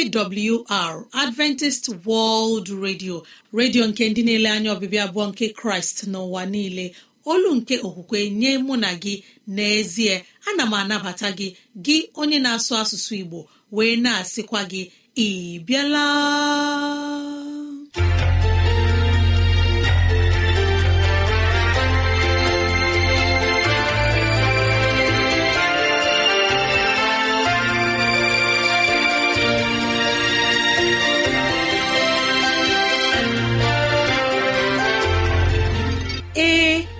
AWR Adventist World Radio redio nke ndị na-ele anya ọbịbịa abụọ nke Kraịst n'ụwa niile olu nke okwukwe nye mụ na gị n'ezie ana m anabata gị gị onye na-asụ asụsụ Igbo wee na-asịkwa gị ị bịala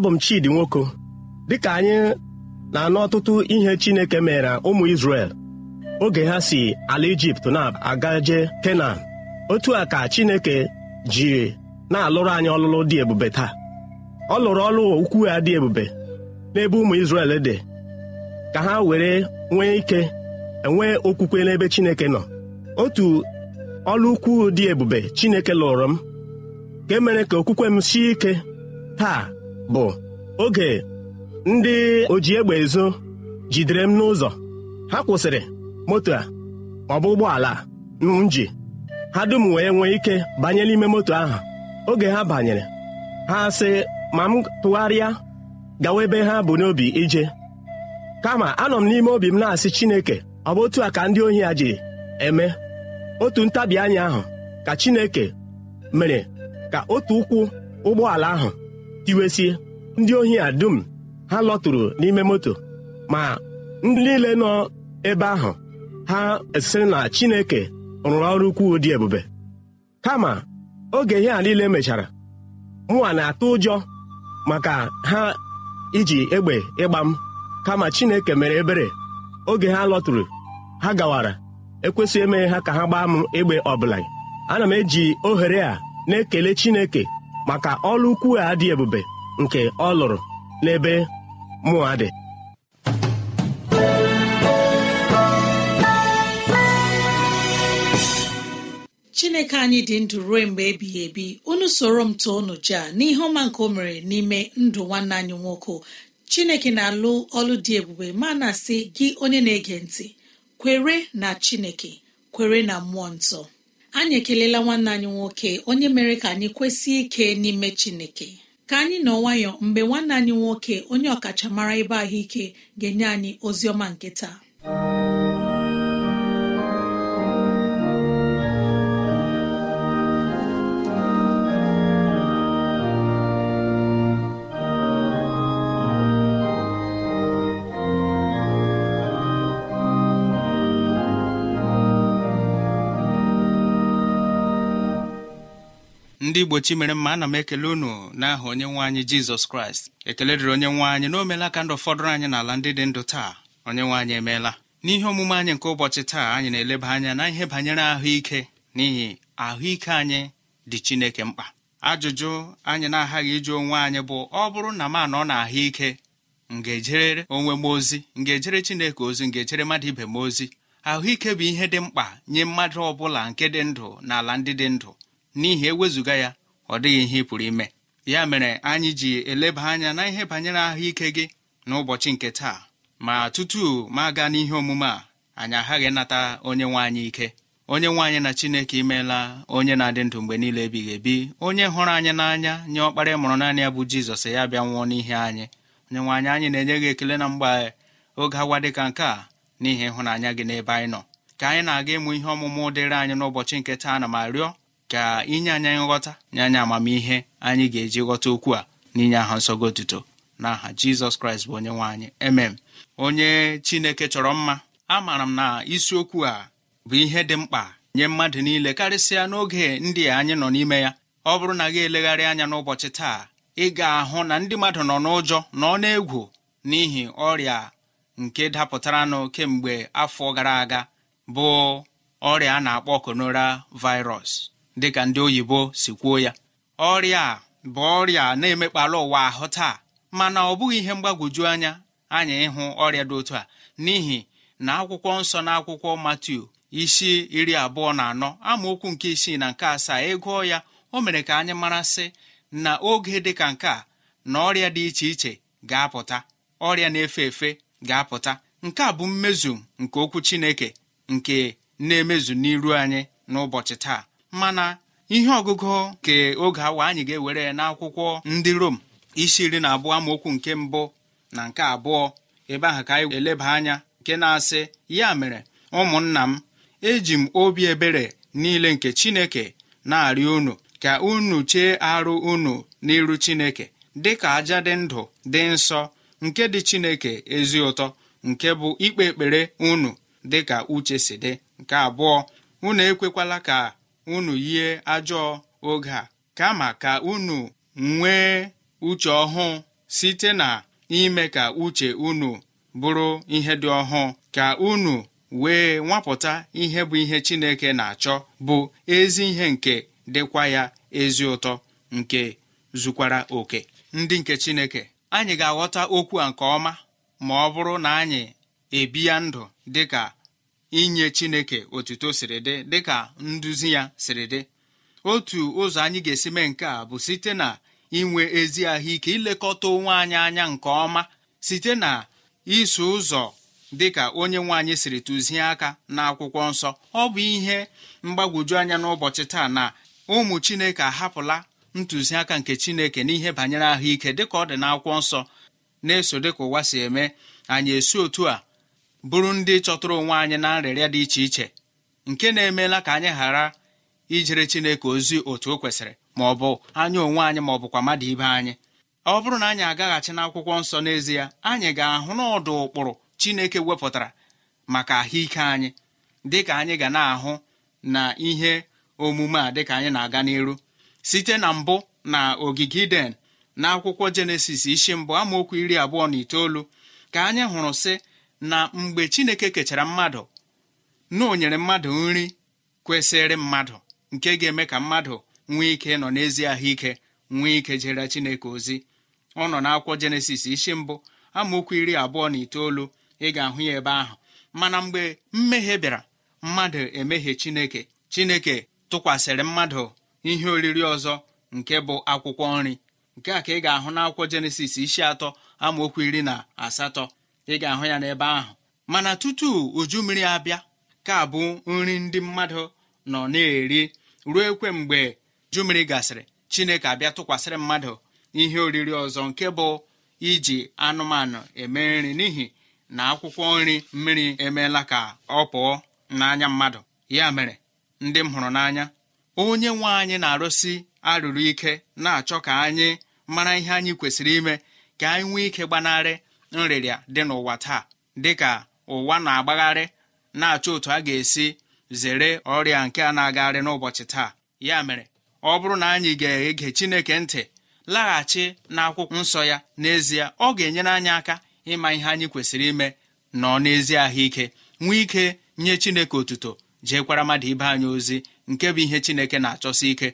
abụ m Chidi Nwoko dịka anyị na-anụ ọtụtụ ihe Chineke mere ụmụ isrel oge ha si ala Ijipt na-agaje Kenan otu a ka Chineke ji na-alụrụ anyị ọlụlụ dị ebube taa ọ lụrụ ọlụ ukwu ya dị ebube n'ebe ụmụ Izrel dị ka ha were nwee ike enwee okwukwe n'ebe Chineke nọ otu ọlụ ukwu dị ebube Chineke lụrụ m ka emere ka okwukwe m sie ike taa bụ oge ndị oji egbe ezo jidere m n'ụzọ ha kwụsịrị moto a ọ bụ ụgbọala m ji ha dum wee nwee ike banye n'ime moto ahụ oge ha banyere ha sị ma m tụgharịa gawa ebe ha bụ n'obi ije kama anọ m n'ime obi m na-asị Chineke ọ bụ otu a ka ndị ohi a ji eme otu ntabi ahụ ka Chineke mere ka otu ụkwụ ụgbọala ahụ iwesie ndị ohi a dum ha lọtụrụ n'ime moto ma ndị niile nọ ebe ahụ ha esiri na chineke rụrụ ọrụ ukwuu dị ebube kama oge ihe a niile mechara mụwa na-atụ ụjọ maka ha iji egbe ịgba m kama chineke mere ebere oge ha lọtụrụ ha gawara ekwesịghị emeghe ha ka ha gbaa m egbe ọbụla ana m eji ohere a na-ekele chineke maka ọlụ ukwu a dị ebube nke ọ lụrụ n'ebe mụa dị chineke anyị dị ndụ ruo mgbe ebighị ebi unu soro m tụọ unu a n'ihe ọma nke o mere n'ime ndụ nwanne anyị nwoke chineke na-alụ ọlụ dị ebube ma na sị gị onye na-ege ntị kwere na chineke kwere na mmụọ nsọ anyị ekelela nwanne anyị nwoke onye mere ka anyị kwesị ike n'ime chineke ka anyị nọ nwayọ mgbe nwanne anyị nwoke onye ọkachamara ebe ahụike ga-enye anyị ozi ọma nke taa. ndị igbo chi mere mma ana m ekele unu n'aha onye nwe anyị jizọs kraịst ekele dịrị onye nwe anyị na o meela ka ndụ fọdụrụ anyị n'ala ndị dị ndụ taa onye nwe anyị emeela n'ihe omume anyị nke ụbọchị taa anyị na-eleba anya na ihe banyere ahụike n'ihi ahụike anyị dị chineke mkpa ajụjụ anyị na-aghaghị ịjụ onwe anyị bụ ọ bụrụ na m anọ na ahụike m ga-ejere onwe m ozi m ga-ejere chineke ozi m ga-ejere mmadụ ibe m ozi ahụike bụ ihe dị mkpa nye mmadụ ọ bụla nke dị ndụ na ala ndị dị ndụ n'ihi ewezụga ya ọ dịghị ihe ị pụrụ ime ya mere anyị ji eleba anya na ihe banyere ahụike gị n'ụbọchị nke taa ma tutu ma aga n'ihe omume a anyị aghaghị nata onye nwe anyị ike onye nwe anyị na chineke imeela onye na-adị ndụ mgbe niile ebighị ebi onye hụrụ anyị n'anya nye ọkpara mụrụ naanị ya bụ jizọs ya bịa nwụọ n'ihe anyị onye nwaanyị anyị anyị na-enye gị ekele na mgbe oge agwa dị ka nke a n'ihi ịhụnanya gị n'ebe anyị nọ ka anyị na-aga ịmụ ihe ọmụmụ dịrị anyị n'ụbọchị nke taa na ma rịọ ka inye anyị nghọta nye anyị amamihe anyị ga-eji ghọta okwu a n'inye aha nsọgo otuto n'aha aha jizọs kraịst bụ onye anyị emem onye chineke chọrọ mma amaara m na isiokwu a bụ ihe dị mkpa nye mmadụ niile karịsịa n'oge ndị anyị nọ n'ime ya ọ bụrụ na gị elegharị anya n'ụbọchị taa ị ga-ahụ na ndị mmadụ nọ n'ụjọ nọ n'egwu n'ihi ọrịa nke dapụtaranụ kemgbe afọ gara aga bụ ọrịa a na-akpọ konora virus dịka ndị oyibo si kwuo ya ọrịa a bụ ọrịa na-emekpalụ ụwa ahụ taa mana ọ bụghị ihe mgbagwoju anya anyị ịhụ ọrịa dị otu a n'ihi na akwụkwọ nsọ na akwụkwọ matiu isi iri abụọ na anọ amaokwu nke isii na nke asaa ịgụọ e ya o mere ka anyị marasị na oge dị ka nke a na ọrịa dị iche iche ga-apụta ọrịa na-efe efe ga-apụta nke a bụ mmezu nke okwu Chineke nke na-emezu n'iru anyị n'ụbọchị taa mana ihe ọgụgụ nke oge awa anyị ga-ewere n'akwụkwọ ndị rom isi iri na abụọ amaokwu nke mbụ na nke abụọ ebe ahụ ka anyị eleba anya nke na-asị ya mere ụmụnna m eji m obi ebere niile nke chineke na-arịọ unu ka unu chee arụ unu n'iru chineke dị ka aja dị ndụ dị nsọ nke dị chineke ezi ụtọ nke bụ ikpe ekpere unu dị ka uche si dị nke abụọ unu ekwekwala ka unu yie ajọ oge a kama ka unu nwee uche ọhụụ site na ime ka uche unu bụrụ ihe dị ọhụụ ka unu wee nwapụta ihe bụ ihe Chineke na-achọ bụ ezi ihe nke dịkwa ya ezi ụtọ nke zukwara oke ndị nke Chineke anyị ga-aghọta okwu a nke ọma ma ọ bụrụ na anyị ebi ya ndụ dịka inye chineke otuto siri dị dịka nduzi ya siri dị otu ụzọ anyị ga-esi mee nke a bụ site na inwe ezi ahụike ilekọta onwe anyị anya nke ọma site na iso ụzọ dịka onye nwe siri tụzie aka n'akwụkwọ nsọ ọ bụ ihe mgbagwoju anya n'ụbọchị taa na ụmụ chineke ahapụla ntụziaka nke chineke n'ihe banyere ahụike dịka ọ dị n'akwụkwọ nsọ na-eso dịka ụwa si eme anyị esi otu a bụrụ ndị chọtụrụ onwe anyị na nrịrịa dị iche iche nke na-emeela ka anyị ghara ijere chineke ozi otu o kwesịrị ma ọ bụ anya onwe anyị ma ọ bụkwa mmadụ ibe anyị ọ bụrụ na anyị agaghachi n'akwụkwọ nsọ n'ezie anyị ga-ahụ n'ọdụ ụkpụrụ chineke wepụtara maka ahụike anyị dịka anyị ga na-ahụ na ihe omume a dịka anyị na-aga n'iru site na mbụ na ogige iden na akwụkwọ jenesis isi mbụ amaokwu iri abụọ na itoolu ka anyị hụrụ sị na mgbe chineke kechara mmadụ na mmadụ nri kwesịrị mmadụ nke ga-eme ka mmadụ nwee ike nọ n'ezi ahụike nwee ike jere chineke ozi ọ nọ n'akwọ jenesis isi mbụ amaokwu iri abụọ na itoolu ị ga-ahụ ya ebe ahụ mana mgbe mmehie bịara mmadụ emehie chineke chineke tụkwasịrị mmadụ ihe oriri ọzọ nke bụ akwụkwọ nri nke a ka ị ga-ahụ n'akwụkwọ jenesis isi atọ amaokwu iri na asatọ ị ga-ahụ ya n'ebe ahụ mana tutu uju mmiri abịa ka bụ nri ndị mmadụ nọ na-eri ruo ekwe mgbe uju mmiri gasịrị chineke abịa tụkwasịrị mmadụ ihe oriri ọzọ nke bụ iji anụmanụ eme nri n'ihi na akwụkwọ nri mmiri emeela ka ọ pụọ n'anya mmadụ ya mere ndị m hụrụ n'anya onye nwe anyị na-arụsi arụrụ ike na-achọ ka anyị mara ihe anyị kwesịrị ime ka anyị nwee ike gbanarị nrịrịa dị n'ụwa taa dịka ụwa na-agbagharị na-achọ otu a ga-esi zere ọrịa nke a na-agagharị n'ụbọchị taa ya mere ọ bụrụ na anyị ga-ege Chineke ntị laghachi n'akwụkwọ nsọ ya n'ezie ọ ga-enyere anyị aka ịma ihe anyị kwesịrị ime nọ n'ezi ahụike nwee ike nye Chineke otuto jeekwara mmadụ ibe anyị ozi nke bụ ihe Chineke na-achọsi ike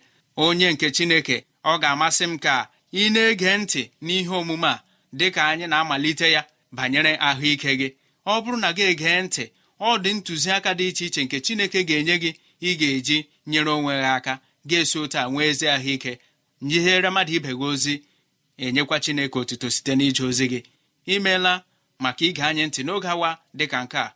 onye nke Chineke ọ ga-amasị m ka ị na-ege ntị n'ihe omume a dị ka anyị na-amalite ya banyere ahụike gị ọ bụrụ na gị egee ntị ọ dị ntụziaka dị iche iche nke chineke ga-enye gị ị ga-eji nyere onwe gị aka ga-esi ụta nwee ezi ahụike nyihere mmadụ ibe gị ozi enyekwa chineke otuto site n'ije ozi gị imeela maka ige anyị ntị n'oge awa dịka nke a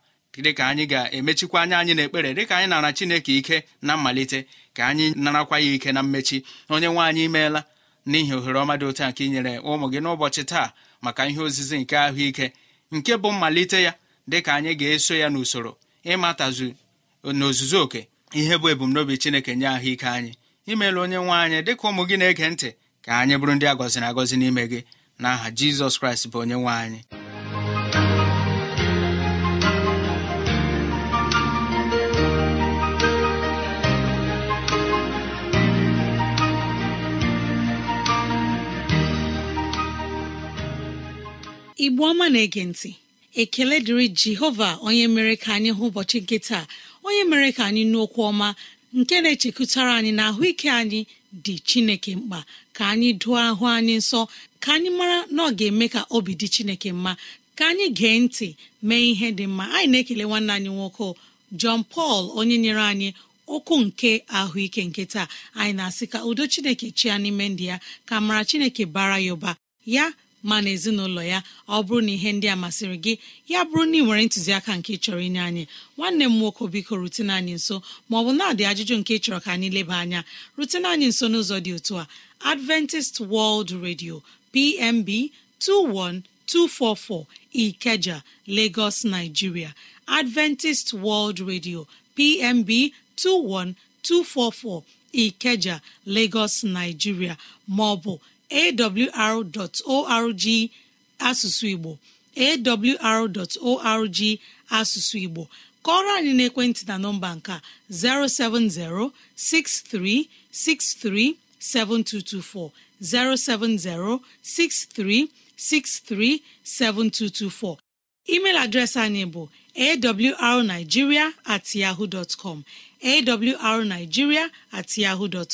dịka anyị ga-emechikwa anya anyị n'ekpere dịka anyị nara chineke ike na mmalite ka anyị narakwa ya ike na mmechi onye nwe anyị imeela n'ihi ohere ọma dị otu nke inyere ụmụ gị n'ụbọchị taa maka ihe ozizi nke ahụike nke bụ mmalite ya dịka anyị ga-eso ya n'usoro ịmatazu n'ozuzu oke ihe bụ ebumnobi chineke nye ahụike anyị imeela onye nwe anyị dịka ụmụ gị na-ege ntị ka anyị bụrụ ndị agọziri na agọzi n'ime gị n'aha aha jizọs kraịst bụ onye nwe anyị igbo ọma na-ege ntị ekele dịrị jehova onye mere ka anyị hụ ụbọchị nke taa onye mere ka anyị nụ okwu ọma nke na echekụtara anyị na ahụike anyị dị chineke mkpa ka anyị dụọ ahụ anyị nsọ ka anyị mara na ọ ga-eme ka obi dị chineke mma ka anyị gee ntị mee ihe dị mma anyị na-ekele nwanne anyị nwoke Jọn pal onye nyere anyị okwu nke ahụike nke taa anyị na-asị ka udo chineke chia n'ime ndị ya ka mara chineke bara ya ụba ya ma na ezinụlọ ya ọ bụrụ na ihe ndị a masịrị gị ya bụrụ na ị nwere ntụziaka nke chọrọ inye anyị nwanne m nwoke biko rutene anyị nso maọbụ na-adị ajụjụ nke chọrọ ka anyị leba anya rutene anyị nso n'ụzọ dị otu a adventist world radio pmb 21244 ikeja lagos nigeria adventist world radio pmb 21244 ikeja lagos nigeria maọbụ awr.org asụsụ igbo awr.org asụsụ igbo kọrọ anyị n'ekwentị na nọmba nka 07063637224 7224 email adreesị anyị bụ awrnigeria at yahoo dot com awrnigeria at yahoo dot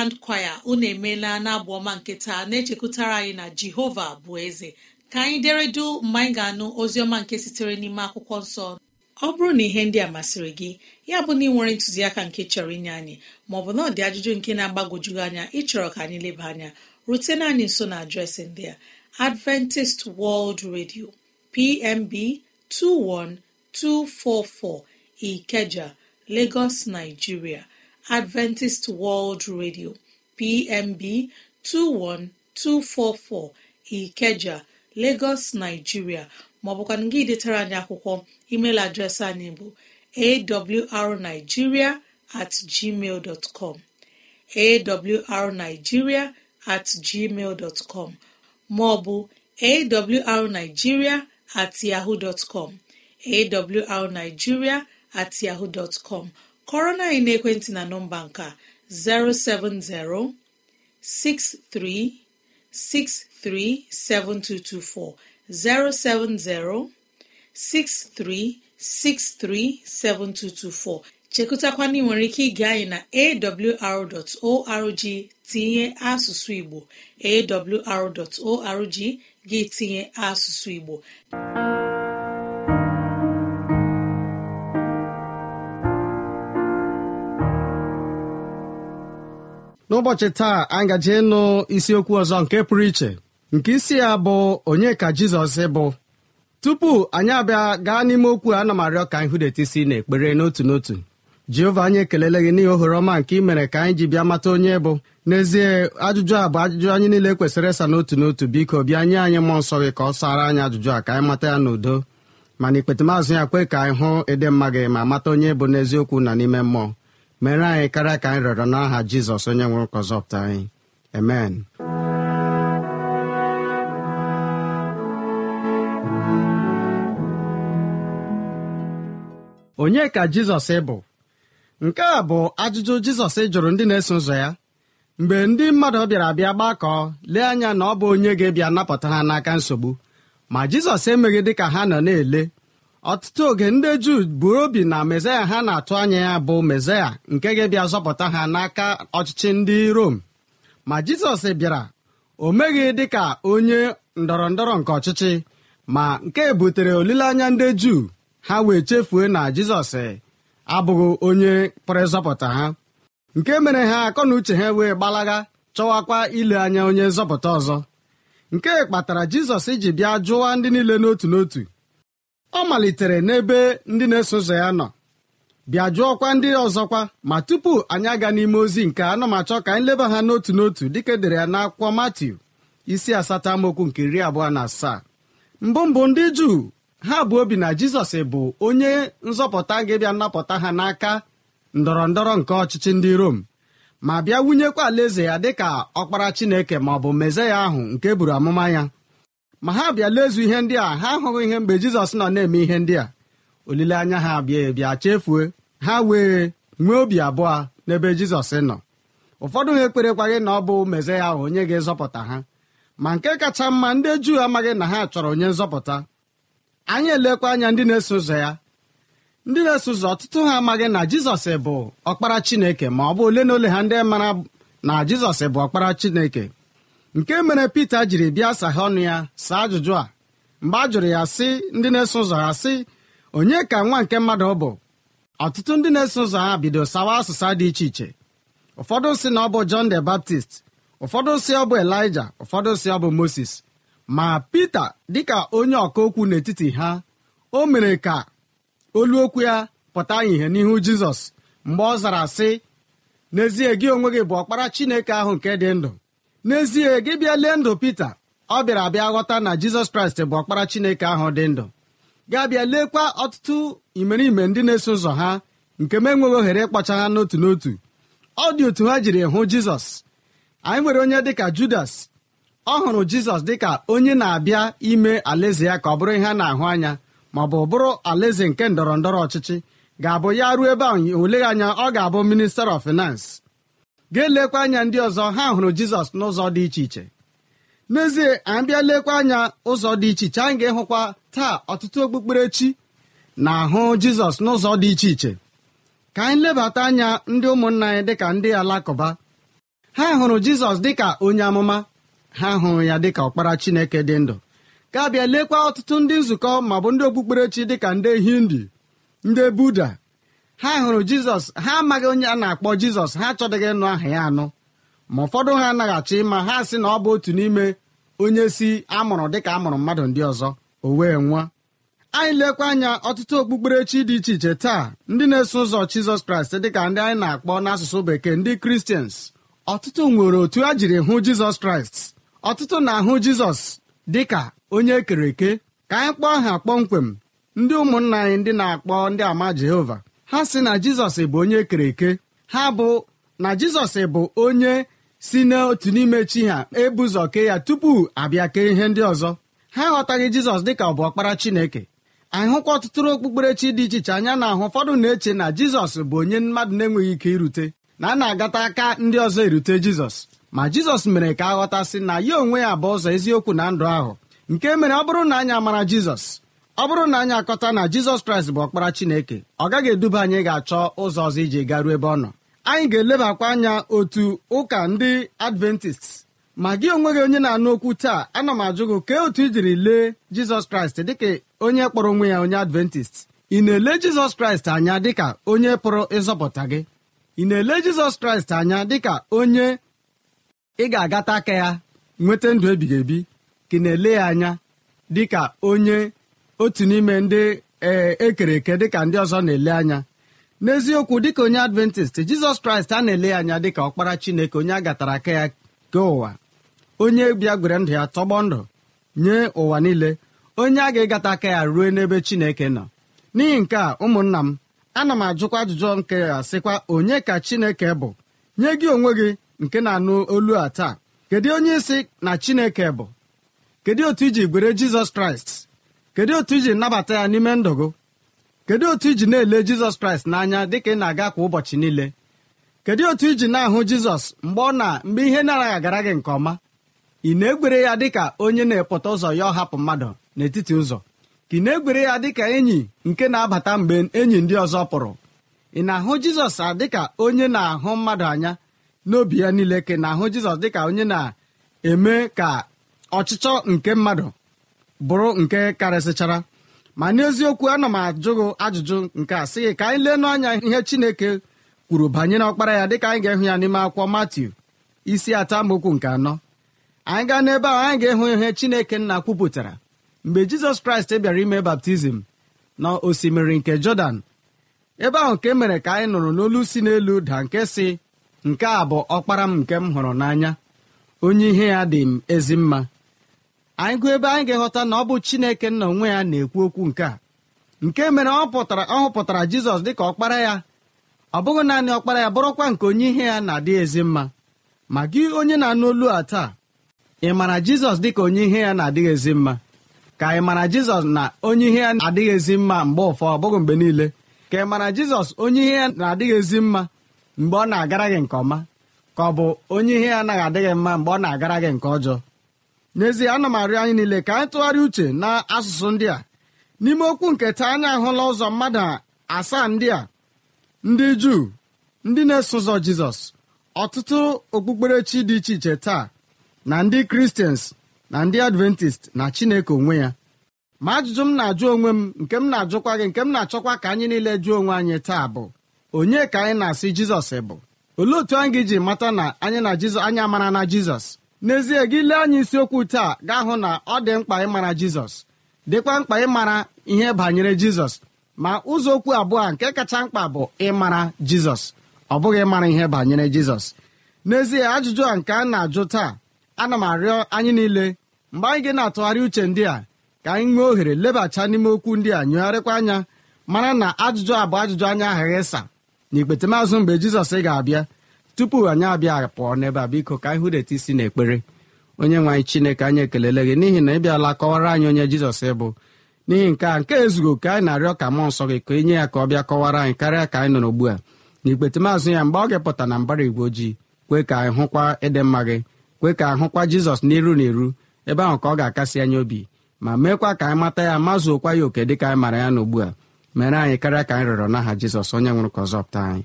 grand kwaya unu emeela n'abụ ọma nketa na-echekwutara anyị na jehova bụ eze ka anyị deredu mgbe anyị ga-anụ ọma nke sitere n'ime akwụkwọ nsọ ọ bụrụ na ihe ndị a masịrị gị ya bụ na ị nwere ntụziaka nke chọrọ inye anyị maọbụ na ọ dị ajụjụ nke na-agbagwojughị anya ịchọrọ ka anyị leba anya rutena anyị nso na adreesị ndị a adventist world radio pmb 21244 ikeja lagos nigeria adventist world radio pmb 21244 ikeja lagos nigeria maọbụ gị detara anyị akwụkwọ email adreesị anyị bụ awrnigiria at gmail com at maọbụ awrnigiria at yahoo com kọrọ na anyị n'ekwentị na nọmba nke 070 7224 chekụtakwana ị nwere ike ige anyị na awr.org tinye asụsụ Igbo awr.org gị tinye asụsụ Igbo n'ụbọchị taa anyị gaje ịnụ isiokwu ọzọ nke pụrụ iche nke isi ya bụ onye ka jizọs bụ tupu anyị abịa gaa n'ime okwu a na m arịọ ka anyị hụdeta isi ekpere n'otu n'otu jehova anyị ekelele gị n'ihi ohere ọma nke ị mere ka anyị ji bịa mata onye bụ n'ezie ajụjụ a bụ ajụjụ anyị niile kwesịrị ịsa n'otu n'otu biko bịa nye anyị mmụọ nsọ gị ka ọ sara anyị ajụjụ a ka anyị mata ya n'udo mana ikpetamazụ ya kwe ka anyị hụ ịdị mma gị ma mata onye bụ n'eziokwu na n'ime mmụọ mere anyị karịa ka anyị rịọrọ n'aha jizọs onye nwere ụkọ zọpụta anyị amen onye ka jizọs bụ nke a bụ ajụjụ jizọs e jụrụ ndị na-eso ụzọ ya mgbe ndị mmadụ bịara bịa gbakọ lee anya na ọ bụ onye ga-ebịa napụta ha n'aka nsogbu ma jizọs emeghị dị ha nọ na-ele ọtụtụ oge ndị juu buru obi na mesaya ha na-atụ anya ya bụ mesaya nke ga-abịa zọpụta ha n'aka ọchịchị ndị rom ma jizọs bịara o meghị dị ka onye ndọrọ ndọrọ nke ọchịchị ma nke butere olileanya ndị juu ha wee chefue na jizọs abụghị onye pụrụ ha nke mere ha akọ na uche ha wee gbalaga chọwakwa ile anya onye nzọpụta ọzọ nke kpatara jizọs ji bịa jụwa ndị niile n'otu n'otu ọ malitere n'ebe ndị na-eso ụzọ ya nọ bịa jụọkwa ndị ọzọkwa ma tupu anyị aga n'ime ozi nke anamachọ ka anyị leba ha n'otu n'otu dịka edere ya n'akwụkwọ Matiu isi asatọ amaokwu nke iri abụọ na asaa mbụ mbụ ndị Juu ha bụ obi na Jizọs bụ onye nzọpụta ga-bịa nnapụta ha n'aka ndọrọ ndọrọ nke ọchịchị ndị Rom ma bịa wunyekwa alaeze ya dịka ọkpara Chineke ma ọ bụ ya ahụ nke e buru amụma ya ma ha bịa lezu ihe ndị a ha ahụghị ihe mgbe jizọs nọ na-eme ihe ndị a olileanya ha bịa bịa chefue ha wee nwee obi abụọ n'ebe jizọs nọ ụfọdụ ha ekperekwaghị na ọ bụ meze ya ahụ onye ga-ezọpụta ha ma nke kacha mma ndị juu amaghị na ha chọrọ onye nzọpụta anyị elekwa anya ndị na-eso ụzọ ya ndị na-eso ụzọ ọtụtụ ha amaghị na jizọs bụ ọkpara chineke ma ọ bụ ole na ole ha ndị mara na jizọs bụ ọkpara chineke nke mere pita jiri bịa saha ọnụ ya saa ajụjụ a mgbe a jụrụ ya sị ndị na-eso ụzọ ya sị onye ka nwa nke mmadụ ọ bụ ọtụtụ ndị na-eso ụzọ ha bido sawa asụsa dị iche iche ụfọdụ si na ọ bụ John the Baptist ụfọdụ si ọ bụ Elijah ụfọdụ si ọ bụ Moses ma Pita dịka onye ọka okwu n'etiti ha o mere ka olu okwu ya pụta ihe n'ihu Jizọs mgbe ọ zara sị n'ezie gị onwe gị bụ ọkpara Chineke ahụ nke dị ndụ n'ezie gị bịa lee ndụ pita ọ bịara abịa ghọta na jizọs kraịst bụ ọkpara chineke ahụ dị ndụ ga-abịa leekwa ọtụtụ imerime ndị na-eso ụzọ ha nke m enweghị ohere ịkpọcha ha n'otu n'otu ọ dị otu ha jiri hụ jizọs anyị nwere onye dịka judas ọ hụrụ jizọs dịka onye na-abịa ime alaeze ya ka ọ bụrụ ihe a na-ahụ anya ma ọ bụ bụrụ alaeze nke ndọrọ ndọrọ ọchịchị ga-abụ ya ruo ebe a oleghị anya ọ ga-abụ minister of finance ga-elekwa anya ndị ọzọ ha hụrụ jizọs n'ụzọ dị iche iche n'ezie anyị bịa lekwa anya ụzọ dị iche iche anyị ga-ehụkwa taa ọtụtụ okpukperechi na-ahụ jizọs n'ụzọ dị iche iche ka anyị lebata anya ndị ụmụnna anyị dịka ndị alakụba ha hụrụ jizọs dịka onye amụma ha hụrụ ya dịka ọkpara chineke dị ndụ ga-abịa lekwa ọtụtụ ndị nzukọ ma bụ ndị okpukperechi dịka ndị hindi ndị buda ha hụrụ jizọs ha amaghị onye a na-akpọ jizọs ha achọdịghị ịnụ aha ya anụ ma ụfọdụ ha anaghị achọ ịma ha sị na ọ bụ otu n'ime onye si amụrụ dịka amụrụ mmadụ ndị ọzọ o wee anyị lekwa anya ọtụtụ okpukperechi dị iche iche taa ndị na-eso ụzọ jizọs kraịst dịka ndị anyị na-akpọ n'asụsụ bekee ndị kristians ọtụtụ nwere otu a jiri hụ jizọs kraịst ọtụtụ na-ahụ jizọs dị ka onye ekere eke ka anyị kpọọ ha kpọmkwem ndị ụmụnna anyị ndị na-akpọ ndị ama jehova ha si na jizọs bụ onye e kere eke ha bụ na jizọs bụ onye si n'otu n'ime chi ha ebuzọ kee ya tupu abịa kee ihe ndị ọzọ ha aghọtaghị jizọs dịka ọ bụ ọkpara chineke ahụkwa ọtụtụrụ okpukperechi dị iche iche anya na-ahụ ụfọdụ na-eche na jizọs bụ onye mmadụ na-enweghị ike irute na a na-agata aka ndị ọzọ erute jizọs ma jizọs mere ka aghọtasị na ya onwe ya bụ ụzọ eziokwu na ndụ ahụ nke mere ọ bụrụ na anyị amara jizọs ọ bụrụ na anyị akọta na jizọs kraịst bụ ọkpara chineke ọ gaghị eduba anyị ga-achọ ụzọ ọzọ iji garuo ebe ọ nọ anyị ga-elebakwa anya otu ụka ndị adventist ma gị onwe gị onye na-anụ okwu taa ana m ajụ gị kee otu ijiri lee jizọs kraịst dịka onye kpọrọ onwe ya onye adventist ị na-ele jizọs kraịst anya dịka onye pụrụ ịzọpụta gị ị na-ele jizọs kraịst anya dịka onye ị ga-agata aka ya nweta ndụ ebighị ebi ka ị na-ele ya anya dịka onye otu n'ime ndị ekere e eke dịka ndị ọzọ na-ele anya n'eziokwu dịka onye adventist jizọs kraịst a na-ele ya anya dịka ọkpara chineke onye a gatara aka ya ke ụwa onye bia-gwere ndụ ya tọgbọ ndụ nye ụwa niile onye a ga-egata aka ya ruo n'ebe chineke nọ n'ihi nke a ụmụnna m ana m ajụkwa ajụjụ nke ya sịkwa onye ka chineke bụ nye gị onwe gị nke na-anụ olu a taa kedu onye isi na chineke bụ kedu otu iji gwere jizọs kraịst kedu otu iji nabata ya n'ime ndụ gị kedu otu iji na-ele jizọs kraịst n'anya dịka ị na-aga kwa ụbọchị niile kedu otu iji na-ahụ jizọs mgbe ọ na mgbe ihe na-araghị agara gị nke ọma ị na egwere ya dịka onye na-epụta ụzọ ya ọhapụ mmadụ n'etiti ụzọ ka ị na egwere ya dịka enyi nke na-abata mgbe enyi ndị ọzọ pụrụ ị na-ahụ jizọs dịka onye na-ahụ mmadụ anya n'obi ya niile ka ị na-ahụ jizọs dịka onye na-eme ka ọchịchọ nke mmadụ bụrụ nke karịsịchara ma n'eziokwu ana m ajụ ajụjụ nke a sị ka anyị lee anya ihe chineke kwuru banyere ọkpara ya dịka anyị ga-ehụ ya n'ime akwụkwọ matiu isi atọ amaokwu nke anọ anyị gaa n'ebe ahụ anyị ga-ehụ ihe chineke nna kwupụtara mgbe jizọs kraịst bịara ime baptizim na osimiri nke jọdan ebe ahụ nke mere ka anyị nụrụ n'olu si n'elu da nke si nke a bụ ọkpara m nke m hụrụ n'anya onye ihe ya dị m ezi mma anyị gụọ ebe anyị ga eghọta na ọ bụ chineke nna onwe ya na-ekwu okwu nke a nke mere ọ pụtara ọ hụpụtara jizọs dịka ọkpara ya ọ bụghị naanị ọkpara ya bụrụkwa nke onye ihe ya na-adị ezi mma ma gị onye na-anụ olu a taa ị mara jizọs dịka onye ihe ya na-adịghị ezi mma ka ị mara jizọs na onye ihe ya na-adịghị ezi mma mgbe ụfọ ọ bụghị mgbe niile ka ị mara jizọs onye ihe ya na-adịghị ezi mma mgbe ọ na-agara gị nke ọma ka ọ bụ onye ihe ya anaghị adịghị mma mgbe ọ na-agara gị nke ọjọọ n'ezie ana m arịọ anyị niile ka anyị tụgharịa uche na asụsụ ndị a n'ime okwu nke taa anyị ahụla ụzọ mmadụ asaa ndị a ndị juu ndị na-eso ụzọ jizọs ọtụtụ okpukperechi dị iche iche taa na ndị kristians na ndị adventist na chineke onwe ya ma ajụjụ m na-ajụ onwe m nke m na-ajụkwa gị nke m na-achọkwa ka anyị niile jụọ onwe anyị taa bụ onye ka anyị na-asị jizọs bụ olee otu anyị ga-eji mata na anyị na anyị amara na jizọs n'ezie gị lee anya isiokwu taa gaa hụ na ọ dị mkpa ịmara jizọs dịkwa mkpa ịmara ihe banyere jizọs ma ụzọ okwu abụọ nke kacha mkpa bụ ịmara jizọs ọ bụghị ịmara ihe banyere jizọs n'ezie ajụjụ a nke a na-ajụ taa ana m arịọ anyị niile mgbe anyị gị na-atụgharị uche ndị a ka anyị nwee ohere lebacha n'ime okwu ndị a nyụgharịkwa anya mara na ajụjụ a bụ ajụjụ anya aghaghị ịsa na ikpetemaazụ mgbe jizọs ga-abịa tupu anyị abịa pụọ n'ebe a biko ka anyị hụdeta isi n'ekpere onye nwe anyị chineke anyị ekelele gị n'ihi na ị bịala kọwara anyị onye jizọs ịbụ n'ihi nke a nke ezugo ka anyị na-arịọ ka mụọ nsọ gị ka e ya ka ọ bịa kọwara anyị karịa ka anyị nọ n'ugbu a na ikpetemazụ ya mgbe ọ ga-epụta na mbara igwe ojii kwee ka anyị hụkwa ịdị mma gị kwee ka anyị jizọs n'iru na iru ebe ahụ ka ọ ga-akasị anyị obi ma meekwa ka anyị mata ya mazụokwa ya oke dịka anyị mara ya n'ugbu a mere anyị karịa ka anyị rịọrọ n'aha jizọs onye nwụrụ ka ọ anyị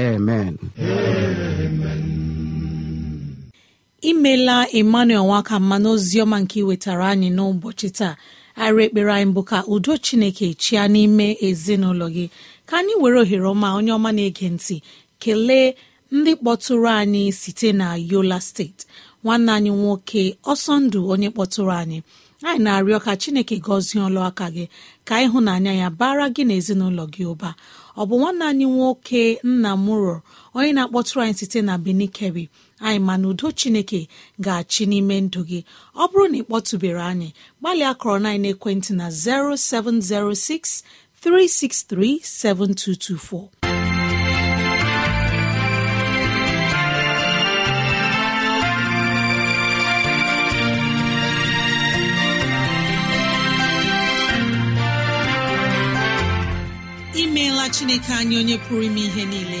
amen imela emmanuel nwaka mma n'oziọma nke iwetara anyị n'ụbọchị taa arị ekpere anyị bụ ka udo chineke chia n'ime ezinụlọ gị ka anyị were ohere ọma onye ọma na-ege ntị kelee ndị kpọtụrụ anyị site na yola steeti nwanne anyị nwoke ọsọ ndụ onye kpọtụrụ anyị anyị na-arịọ ka chineke gọzie ọlụ aka gị ka ịhụnanya ya bara gị na ezinụlọ gị ụba ọ bụ nwanne anyị nwoke nna mụrọ onye na-akpọtụrụ anyị site na benin kebbi anyị ma na udo chineke ga-achị n'ime ndụ gị ọ bụrụ na ị kpọtụbere anyị gbalịa kọrọ na ekwentị na 0706 363 7224. imeela chineke anyị onye pụrụ ime ihe niile